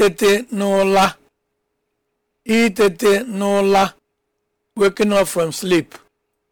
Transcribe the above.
itete n'ụla itete n'ụla waking up from sleep